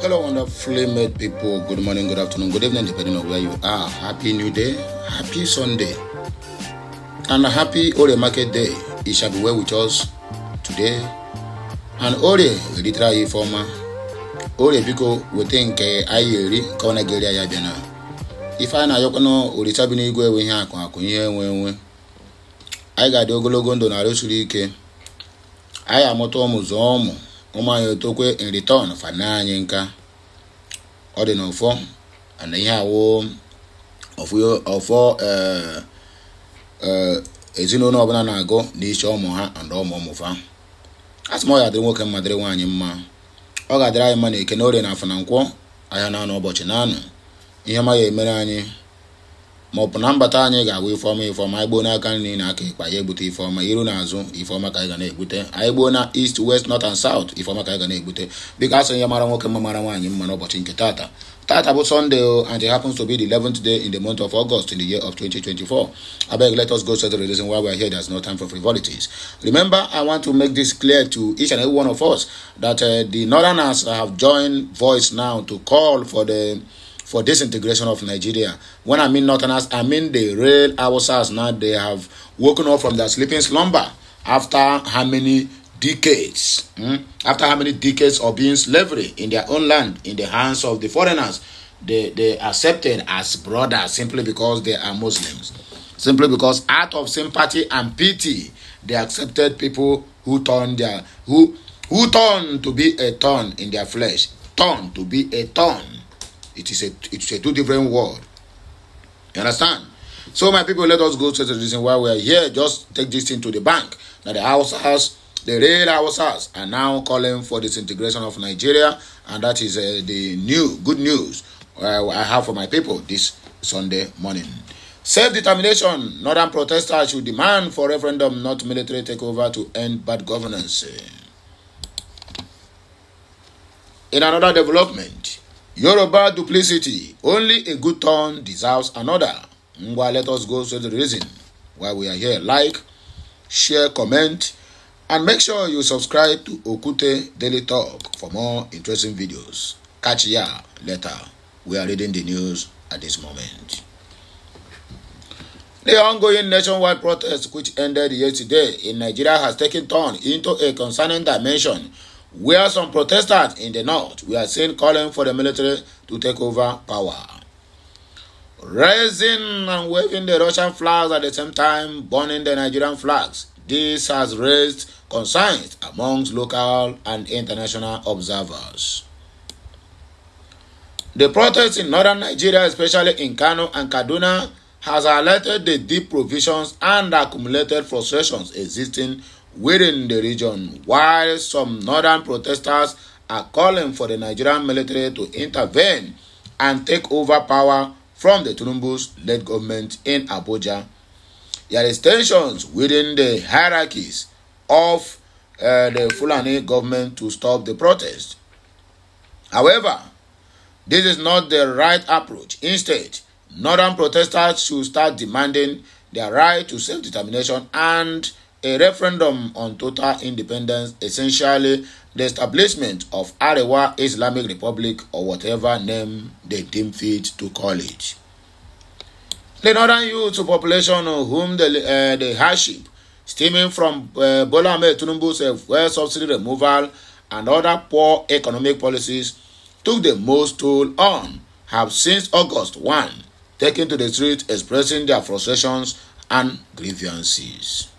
Hello, wonderfully made people. Good morning, good afternoon, good evening, depending on where you are. Happy new day, happy Sunday, and a happy Ore Market Day. It shall be well with us today. And Ore, literally former Ore Biko, we think Ayeri, eh, Kona Geria Yabena. If I na Yokono, Uritabini Gwe, ihe akụ akụ ihe enwe enwe anyị ga-adị ogologo ndụ na arụsiri ike anyị amụta ụmụ zụọ ụmụ ụmụ anyị otokwe in return fana anyị nka ọ dị n'ụfọ na ihe awụ ọfọ eh, eh, ezinụlọ ọbụla na-agụ na iche ụmụ ha na ụmụ ụmụ fa asụm ọ ga-adịrị nwoke mma dịrị nwaanyị mma ọ ga-adịrị anyị mma na eke na orie na afọ na nkwọ ahịa na anụ ụbọchị na anụ ihe ma ya emere anyị maọbụ na mbata anyị ga-agwa ifeọma ifeọma anyị gbuo n'aka nri na aka ịkpa ya egbute ifeọma iru na azụ ifeọma ka anyị ga na-egbute anyị gbuo na east west north and south ifeọma ka anyị ga na-egbute biko asị ya mara nwoke mma mara nwaanyị mma n'ụbọchị nke tata tata bụ sunday o and it happens to be the eleventh day in the month of august in the year of 2024 abeg let us go straight to the reason why we are here there's no time for frivolities remember i want to make this clear to each and every one of us that uh, the northerners have joined voice now to call for the for disintegration of Nigeria. When I mean Northerners, I mean the real Awasas now. They have woken up from their sleeping slumber after how many decades? Hmm? After how many decades of being slavery in their own land, in the hands of the foreigners? They, they accepted as brothers simply because they are Muslims. Simply because out of sympathy and pity, they accepted people who turned their who who turned to be a thorn in their flesh, turned to be a thorn it is a it's a two different world. You understand? So my people, let us go to the reason why we are here. Just take this thing to the bank. Now the house has the red house has are now calling for disintegration of Nigeria, and that is uh, the new good news uh, I have for my people this Sunday morning. Self-determination. Northern protesters should demand for referendum, not military takeover, to end bad governance. In another development, Yoruba duplicity. Only a good turn deserves another. Ngwa, let us go to the reason why we are here. Like, share, comment, and make sure you subscribe to Okute Daily Talk for more interesting videos. Catch ya later. We are reading the news at this moment. The ongoing nationwide protest which ended yesterday in Nigeria has taken turn into a concerning dimension where some protesters in the north were seen calling for the military to take over power. Raising and waving the Russian flags at the same time, burning the Nigerian flags, this has raised concerns amongst local and international observers. The protests in northern Nigeria, especially in Kano and Kaduna, has alerted the deep provisions and accumulated frustrations existing within the region, while some northern protesters are calling for the Nigerian military to intervene and take over power from the Tunumbu's led government in Abuja. There is tensions within the hierarchies of uh, the Fulani government to stop the protest. However, this is not the right approach. Instead, northern protesters should start demanding their right to self-determination and a referendum on total independence, essentially the establishment of Arewa Islamic Republic or whatever name they deem fit to call it. The northern youth population whom the, uh, the hardship stemming from uh, Bola Ahmed Tinubu's uh, fuel subsidy removal and other poor economic policies took the most toll on have since August 1 taken to the streets expressing their frustrations and grievances.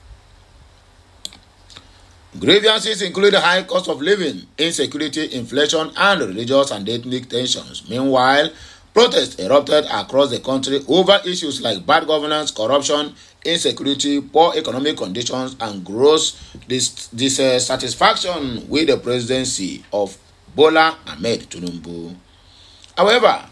Grievances include high cost of living, insecurity, inflation, and religious and ethnic tensions. Meanwhile, protests erupted across the country over issues like bad governance, corruption, insecurity, poor economic conditions, and gross dis dissatisfaction with the presidency of Bola Ahmed Tinubu. However,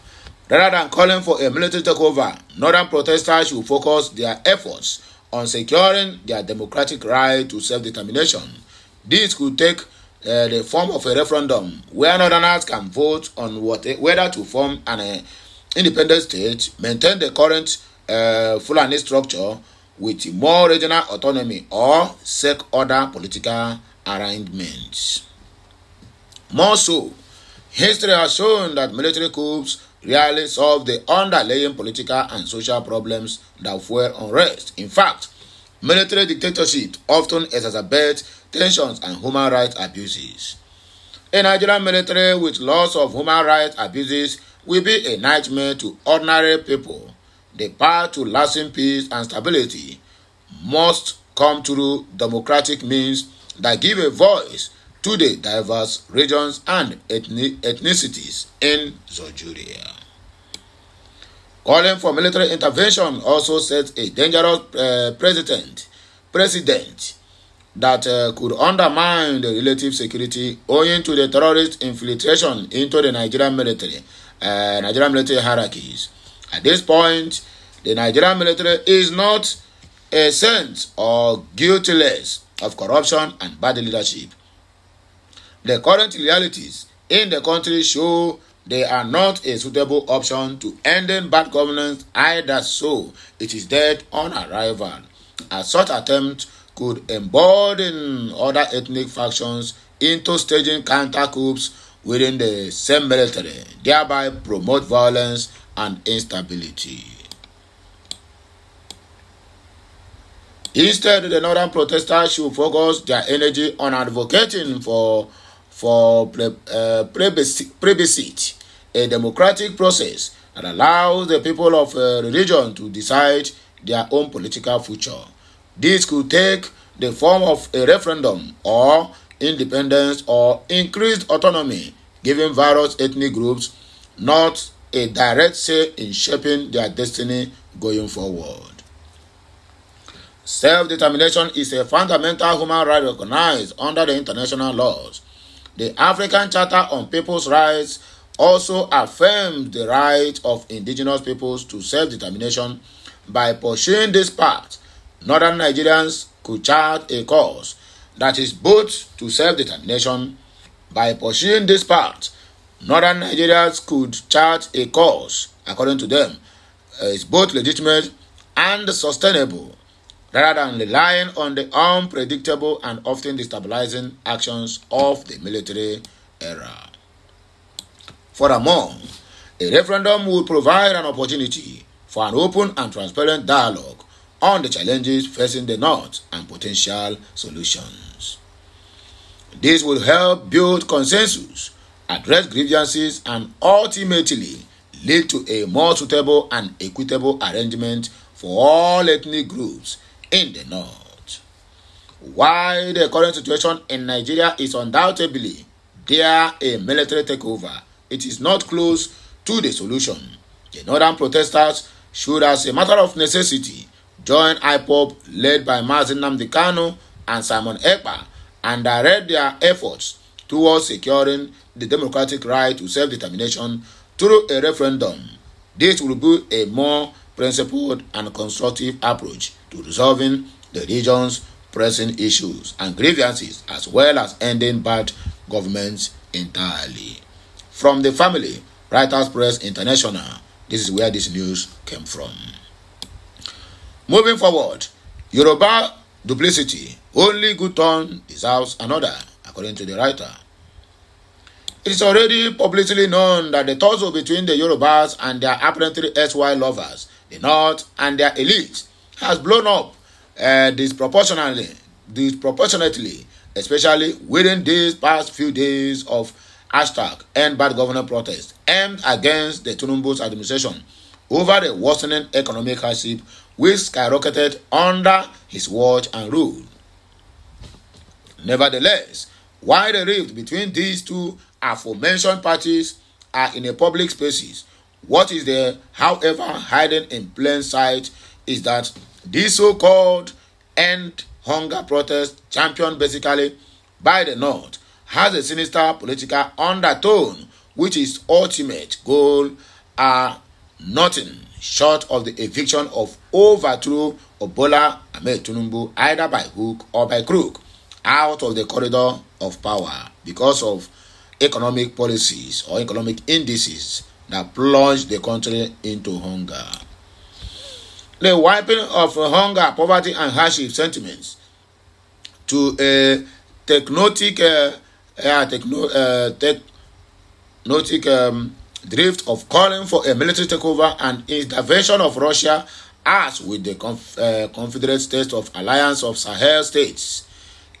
rather than calling for a military takeover, northern protesters should focus their efforts on securing their democratic right to self-determination This could take uh, the form of a referendum where Northerners can vote on what, whether to form an uh, independent state, maintain the current uh, Fulani structure with more regional autonomy or seek other political arrangements. More so, history has shown that military coups rarely solve the underlying political and social problems that fuel unrest. In fact, military dictatorship often exacerbates tensions, and human rights abuses. A Nigerian military with lots of human rights abuses will be a nightmare to ordinary people. The path to lasting peace and stability must come through democratic means that give a voice to the diverse regions and ethnicities in Nigeria. Calling for military intervention also sets a dangerous uh, eh, precedent, precedent that uh, could undermine the relative security owing to the terrorist infiltration into the Nigerian military, uh, Nigerian military hierarchies. At this point, the Nigerian military is not a saint or guiltless of corruption and bad leadership. The current realities in the country show they are not a suitable option to ending bad governance either so it is dead on arrival. A such attempt could embolden other ethnic factions into staging counter coups within the same military, thereby promote violence and instability. Instead, the northern protesters should focus their energy on advocating for for pre, uh, a democratic process that allows the people of a uh, religion to decide their own political future. This could take the form of a referendum or independence or increased autonomy, giving various ethnic groups not a direct say in shaping their destiny going forward. Self determination is a fundamental human right recognized under the international laws. The African Charter on People's Rights also affirms the right of indigenous peoples to self determination by pursuing this path northern Nigerians could chart a course that is both to self-determination. By pursuing this path, northern Nigerians could chart a course, according to them, is both legitimate and sustainable, rather than relying on the unpredictable and often destabilizing actions of the military era. Furthermore, a referendum would provide an opportunity for an open and transparent dialogue on the challenges facing the North and potential solutions. This will help build consensus, address grievances, and ultimately lead to a more suitable and equitable arrangement for all ethnic groups in the North. While the current situation in Nigeria is undoubtedly there a military takeover, it is not close to the solution. The northern protesters should, as a matter of necessity, joined IPOP led by Mazin Namdekano and Simon Ekpa and directed their efforts towards securing the democratic right to self-determination through a referendum. This will be a more principled and constructive approach to resolving the region's pressing issues and grievances as well as ending bad governments entirely. From the family, Writers Press International, this is where this news came from. Moving forward, Yoruba duplicity, only good turn deserves another, according to the writer. It is already publicly known that the tussle between the Yorubas and their apparently SY lovers, the North and their elites, has blown up uh, disproportionately, disproportionately, especially within these past few days of hashtag end bad governor protest aimed against the Tunumbu's administration over the worsening economic hardship which skyrocketed under his watch and rule. Nevertheless, while the rift between these two aforementioned parties are in a public spaces, what is there, however, hidden in plain sight is that this so-called end hunger protest championed basically by the North has a sinister political undertone which is ultimate goal are uh, nothing short of the eviction of overthrow of Bola Ahmed Tinubu either by hook or by crook out of the corridor of power because of economic policies or economic indices that plunge the country into hunger. The wiping of hunger, poverty, and hardship sentiments to a technotic, uh, uh, techno, uh, technotic um, drift of calling for a military takeover and intervention of Russia as with the conf- uh, Confederate States of Alliance of Sahel States.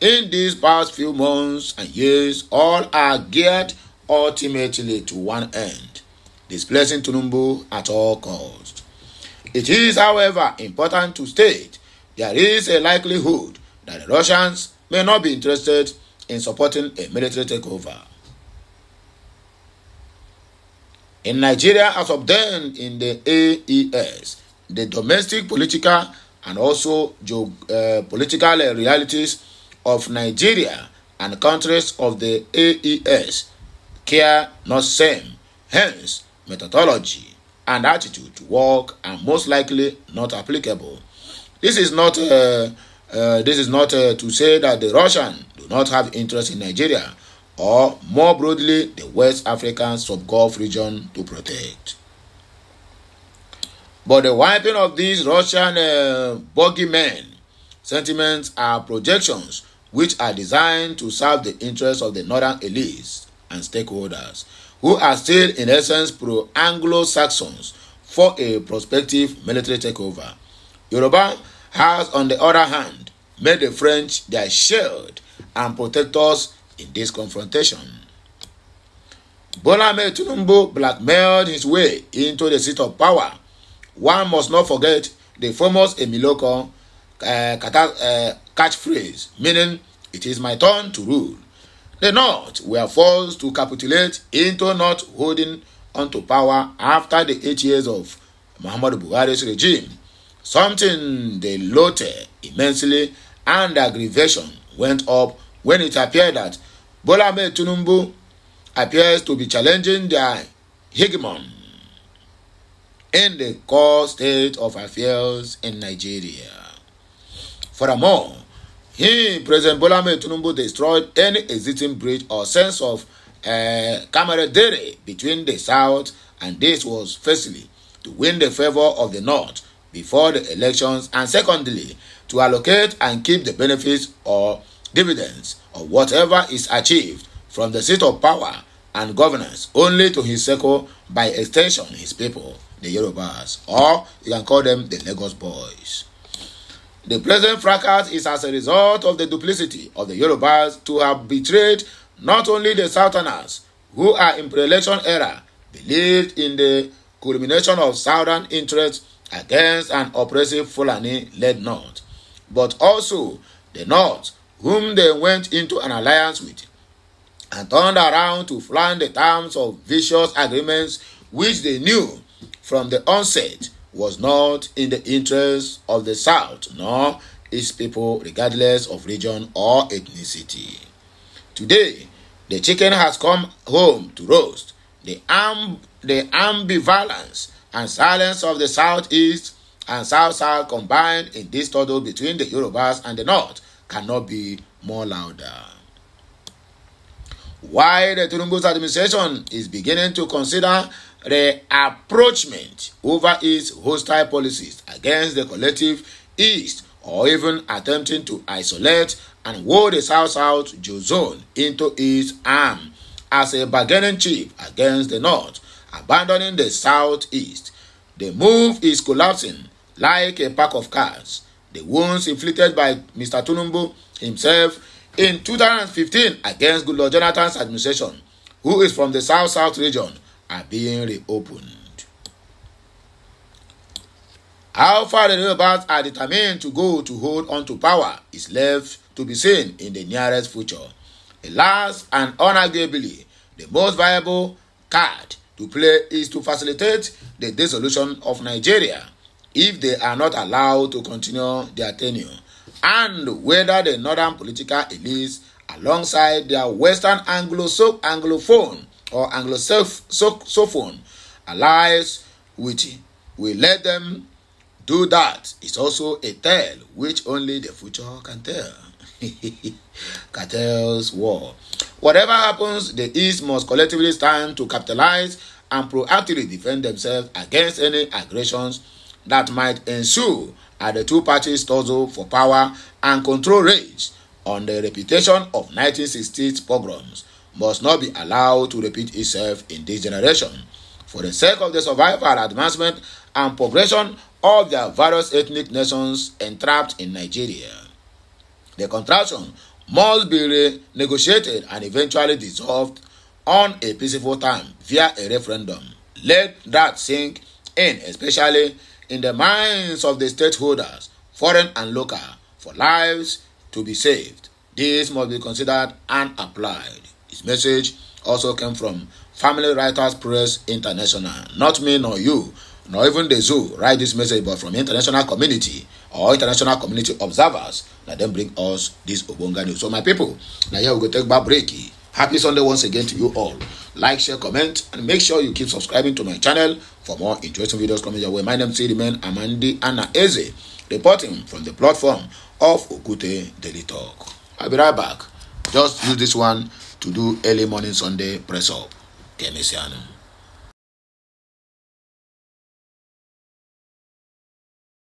In these past few months and years, all are geared ultimately to one end displacing Tunumbu at all costs. It is, however, important to state there is a likelihood that the Russians may not be interested in supporting a military takeover. in Nigeria as of then, in the AES, the domestic political and also uh, political realities of Nigeria and countries of the AES care not same, hence methodology and attitude to work are most likely not applicable. This is not uh, uh, this is not uh, to say that the Russian do not have interest in Nigeria or more broadly the West African sub-Gulf region to protect. But the wiping of these Russian uh, bogeymen sentiments are projections which are designed to serve the interests of the northern elites and stakeholders who are still in essence pro-Anglo-Saxons for a prospective military takeover. Yoruba has on the other hand made the French their shield and protectors in this confrontation. Bola Ahmed Tinubu blackmailed his way into the seat of power. One must not forget the famous Emiloko uh, catchphrase, meaning, it is my turn to rule. The North were forced to capitulate into not holding onto power after the eight years of Muhammadu Buhari's regime, something they loathed immensely and aggravation went up when it appeared that Bola Ahmed Tinubu appears to be challenging their hegemon in the core state of affairs in Nigeria. Furthermore, he, President Bola Ahmed Tinubu, destroyed any existing bridge or sense of uh, camaraderie between the South and this was firstly to win the favor of the North before the elections and secondly to allocate and keep the benefits or dividends or whatever is achieved from the seat of power and governance only to his circle by extension his people the yorubas or you can call them the lagos boys the present fracas is as a result of the duplicity of the yorubas to have betrayed not only the southerners who are in pre-election era believed in the culmination of southern interests against an oppressive fulani led north but also the north whom they went into an alliance with, and turned around to flaunt the terms of vicious agreements which they knew from the onset was not in the interest of the South nor its people, regardless of region or ethnicity. Today, the chicken has come home to roast. The, amb- the ambivalence and silence of the Southeast and South South combined in this struggle between the Yorubas and the North cannot be more louder. While the Tinubu's administration is beginning to consider the approachment over its hostile policies against the collective East or even attempting to isolate and hold the South South Jew zone into its arm as a bargaining chip against the North, abandoning the Southeast. The move is collapsing like a pack of cards the wounds inflicted by Mr. Tunumbu himself in 2015 against Goodluck Jonathan's administration, who is from the South South region, are being reopened. How far the rebels are determined to go to hold on to power is left to be seen in the nearest future. Alas and unarguably, the most viable card to play is to facilitate the dissolution of Nigeria if they are not allowed to continue their tenure and whether the northern political elites alongside their western anglophone or Anglophone allies with will let them do that is also a tale which only the future can tell. Cartels war. Whatever happens, the East must collectively stand to capitalize and proactively defend themselves against any aggressions that might ensue as the two parties tussle for power and control rage on the reputation of 1960s pogroms must not be allowed to repeat itself in this generation. For the sake of the survival, advancement, and progression of their various ethnic nations entrapped in Nigeria, the contraction must be renegotiated and eventually dissolved on a peaceful time via a referendum. Let that sink in, especially in the minds of the stakeholders, foreign and local, for lives to be saved. This must be considered and applied. His message also came from Family Writers Press International. Not me nor you, nor even the zoo write this message, but from international community or international community observers, na dem bring us this ogbonge news. So my people, now here we go take back break. Happy Sunday once again to you all. Like, share, comment, and make sure you keep subscribing to my channel For more interesting videos coming your way, my name is Sidiman Amandi Anaeze, reporting from the platform of Okute Daily Talk. I'll be right back. Just use this one to do early morning Sunday press up. Kenisiano.